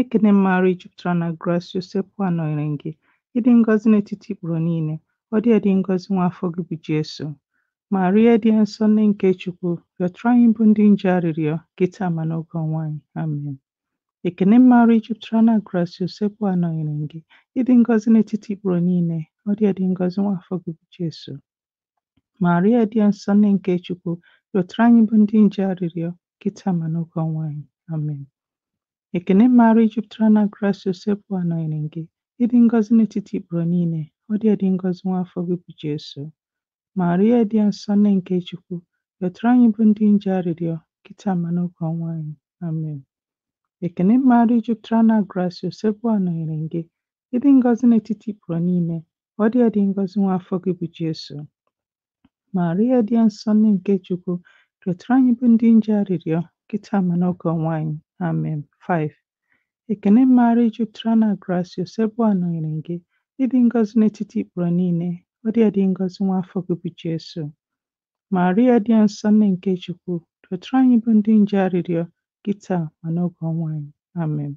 Ekene m maara jupụtara na Gracia Sekwu anọnyere gị, ịdị ngọzi n'etiti ikpuru niile, ọ dị edi ngọzi nwaafọ gị bụ Jesu. Maria dị nsọ nne nke Chukwu, rịọtara anyị bụ ndị nje arịrịọ, kịta ma n'oge ọnwụ anyị. Amen. Ekene m maara jupụtara na Gracia Sekwu anọnyere gị, ịdị ngọzi n'etiti ikpuru niile, ọ dị edi ngọzi nwaafọ gị bụ Jesu. Maria dị nsọ nne nke Chukwu, rịọtara anyị bụ ndị nje arịrịọ, kịta ma n'oge ọnwụ anyị. Amen. Ekene maara jupụtara na Grace Usekwu anọnyere gị, ịdị ngọzi n'etiti ikporo niile, ọ dị ịdị ngọzi nwa afọ gị bụ Jesu. Maria dị nsọ nne nke Chukwu, rịọtara anyị bụ ndị nje arịrịọ, kịta ma n'oge ọnwa anyị. Amen. Ekene maara jupụtara na Grace Usekwu anọnyere gị, ịdị ngọzi n'etiti ikporo niile, ọ dị ịdị ngọzi nwa afọ gị bụ Jesu. Maria dị nsọ nne nke Chukwu, rịọtara anyị bụ ndị nje arịrịọ, kịta ma n'oge ọnwa anyị. Amen. Um, um, 5. Ekene maara jupụtara na Gracio, sekpụ anọnyere gị, ịdị ngọzi n'etiti ikporo niile, ọ dị adị ngọzi nwa afọ gị bụ Jesu. Maria dị nsọ nne nke Chukwu, dọtara anyị bụ ndị nje arịrịọ, kịta ma n'oge ọnwụ anyị. Amen.